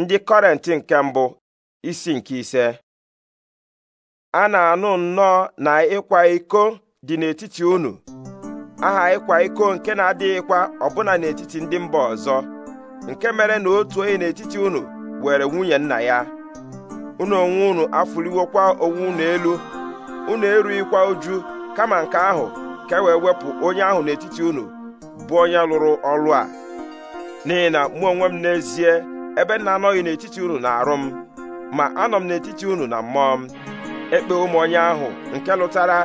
ndị kọrent nke mbụ isi nke ise a na-anụ nnọọ na ịkwa iko dị n'etiti unu aha ịkwa iko nke na-adịghịkwa ọbụna n'etiti ndị mba ọzọ nke mere na otu onye n'etiti unu were nwunye nna ya unu onwe unu afụliwokwa onwe unu elu unu erughịkwa uju kama nke ahụ ka e wee wepụ onye ahụ n'etiti unu bụ onye lụrụ ọlụ a n'ihi na mụ onwe m n'ezie ebe m na-anọghị n'etiti unu na-arụ m ma anọ m n'etiti unu na mmụọ m ekpe ụmụ onye ahụ nke lụtara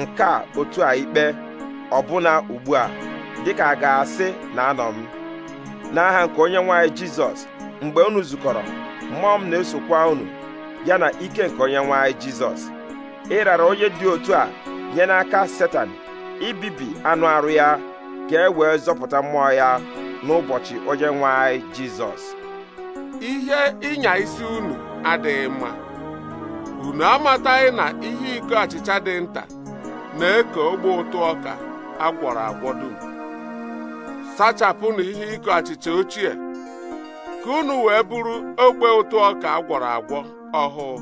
nke a otu a ikpe ọbụna ugbu a dịka a ga-asị na anọ m n'aha nke onye nwaanyị jizọs mgbe unu zukọrọ mmụọ m na-esokwa unu ya na ike nke onye nwaanyị jizọs ịrara onye dị otu a nye n'aka setan ibibi anụ arụ ya ka e wee zọpụta mmụọ ya n'ụbọchị onye nwaanyị jizọs ihe ịnya isi unu adịghị mma unu amataghị na ihe iko achịcha dị nta na-eke ogbe ụtụ ọka agwọrọ agwọ dum sachapụnụ ihe iko achịcha ochie ka unu wee bụrụ ogbe ụtụ ọka agwọrọ agwọ ọhụụ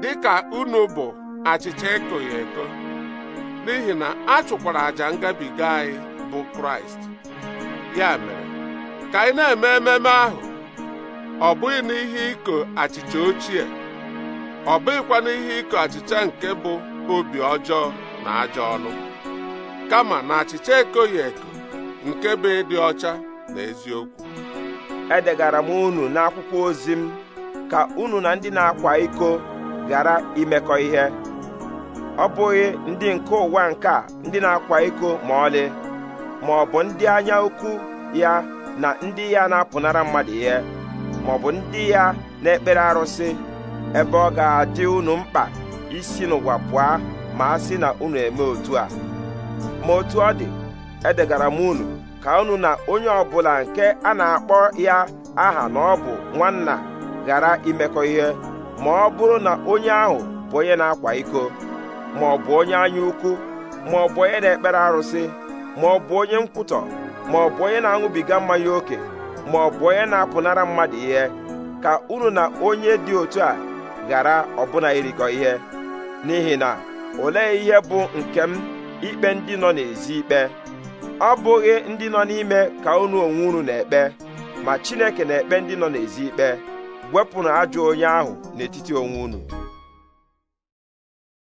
dị ka unu bụ achịcha ekoghị eko n'ihi na a chụkwara àjà ngabiga anyị bụ kraịst ya mere ka anyị na-eme ememe ahụ ọ bụghị na ihe achịcha ochie ọ bụghịkwa na ihe iko achịcha nke bụ obi ọjọọ na ajọ ọnụ kama na achịcha ekoghị eko nke bụ ịdị ọcha na eziokwu edegara m unu n'akwụkwọ ozi m ka unu na ndị na-akwa iko ghara imekọ ihe ọ bụghị ndị nke ụwa nke a ndị na-akwa iko ma ọlị ma ọ bụ ndị anya ukwu ya na ndị ya na-apụnara mmadụ ihe maọbụ ndị ya na-ekpere arụsị ebe ọ ga-adị unu mkpa isi n'ụwa pụọ ma a sị na unu eme otu a ma otu ọ dị edegara m unu ka unu na onye ọbụla nke a na-akpọ ya aha na ọ bụ nwanna ghara imekọ ihe ma ọ bụrụ na onye ahụ bụ onye na-akwa iko ma ọ bụ onye anya ukwu ma ọ bụ onye na-ekpere arụsị ma ọ bụ onye nkwutọ ma ọ bụ onye na-aṅụbiga mmanya ókè ma ọ bụ onye na-apụnara mmadụ ihe ka unu na onye dị otu a ghara ọbụna irikọ ihe n'ihi na olee ihe bụ nke m ikpe ndị nọ n'ezi ikpe ọ bụghị ndị nọ n'ime ka unu onwe unu na-ekpe ma Chineke na-ekpe ndị nọ n'ezi ikpe wepụnụ ajọ onye ahụ n'etiti onwe unu